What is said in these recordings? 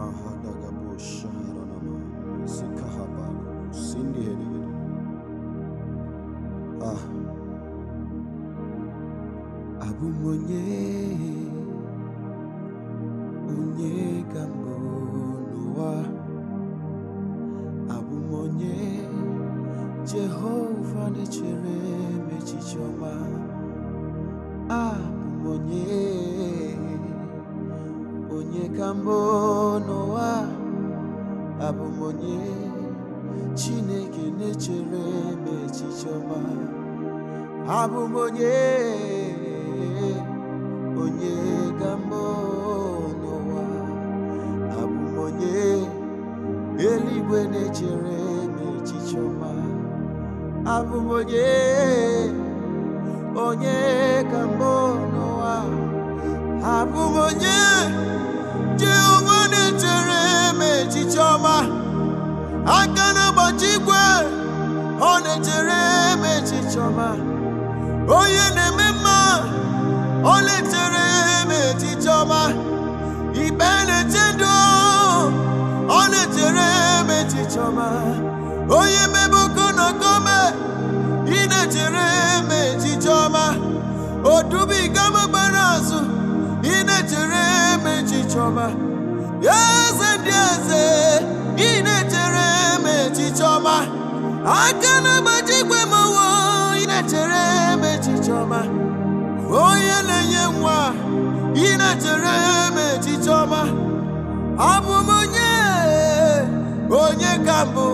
Mahadagabo Shaharanama Sikahabago Sindi Ah Abu Monye Unye Gambo Noah Abu Monye Jehovah Nechere Mechichoma Abu Monye ka mbụ n'ụwa abụ onye Chineke na-echere abụm echiche ọma onye onye ka mbụ n'ụwa abụ onye eluigwe na-echere m echiche ọma onye onye ka mbụ n'ụwa abụ onye Oh ye eme mma ọ letere eme etiti ọma ikpe na-eche ndụ o Oh ye me etiti ọma i ne oku na okome Oh na na-echere eme etiti i ne na-echere eme etiti ọma eze ndị eze i ne na-echere eme etiti ọma aka na-agbaji abụ m onye onye ka mbụ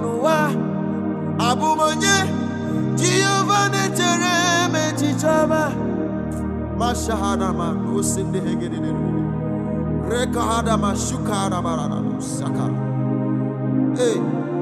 n'ụwa abụ m onye jehova na-echere m echiche ọma mashahanama n'osi ndị hegededere rekahadama shukaharamara na sakara ee